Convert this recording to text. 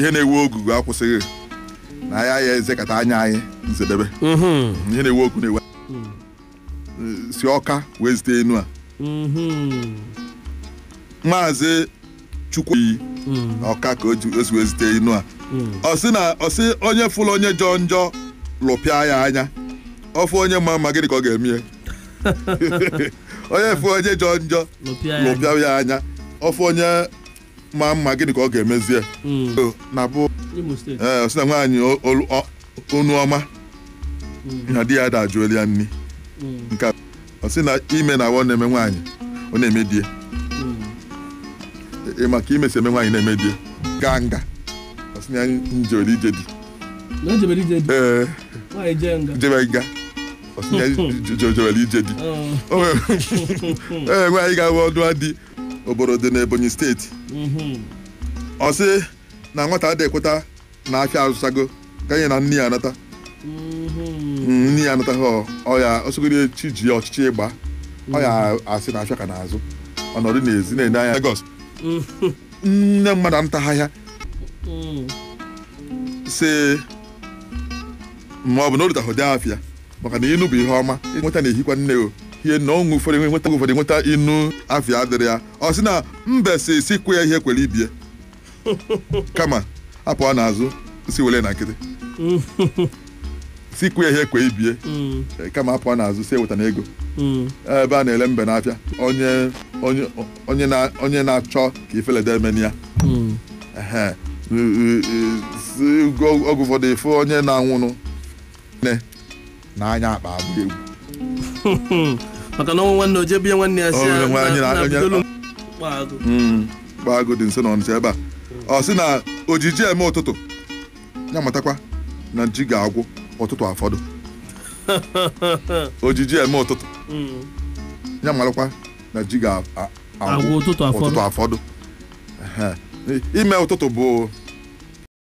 ihe na-ewu ogugu akwụsịghị na ya ya ezekata anya anyị nzedebe mm-hmm. ihe na ewe ogu na-ewe mm-hmm. si ọka wee zite enu a mm-hmm. maazị chukwu mm. ọka ka o si wee zite enu a mm. ọ sị onye fụlụ onye jọọ njọ lụpịa ya anya ọfụ onye ma ma gịnị ka ọ ga-eme onye fụ onye jọọ njọ lụpịa ya anya ọfụ onye maa mma gịnị ka ọ ga-emezie hmm. oh, eh, si na nwaanyị onu ọma hmm. na di ya dajụelu ya nri hmm. nke ọ sị na ime na awọ na-eme nwaanyị ọ na-eme die maka ime si eme nwaanyị na-eme die gaa nga ọ sị na ya njere ije di eh. jebe nga ọ sị na ya jejewere ije di oh. ee nwaanyị ga-abụ ọdụ adị obodo dị n'ebonyi steeti mhm. ọ sị na nwata ada ekweta na afịa azụchago ka anyị na nne ya anata mhm. mm, nne ya anata ha ọya osogoro chi ji ọchịchị ịgba ọ ya mhm. asị na afịa ka na azụ. ọnọdụ n'ezi na-enye anya Lagos nne mmadụ ntaghahịa si ma ọ bụ na orutahụdị afịa maka na inu bụ ihe ọma ịnweta na ehikwa nne o ihe na ọṅụ ụfọdụ enwe nweta ụfọdụ nweta inu afọ adịrị ya ọ sị na mbe si si kwe ya ihe kwere ibie kama apụ a n'azụ si wele na nkịtị si kwe ya ihe kwe ibie mm. eh, kama apụ a n'azụ si eweta na ego mm. ebe a na-ele mbe n'afịa onye na-achọ ka ifelede emeni ya mm. oge ụfọdụ ịfụ onye na-anwụnụ na anya akpa agba egwu maka na ọnwa nwanne o jebie nwanne ya si hmm, gbaago dị nso na ọnịcha ebe a ọ sị na ojiji eme ụtụtụ ya matakwa na ji ga-agwụ ụtụtụ afọdụ ojiji eme ụtụtụ hmm. ya marakwa na ji ga-agwụ ụtụtụ afọdụ ime ụtụtụ bụ